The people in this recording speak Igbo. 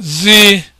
zi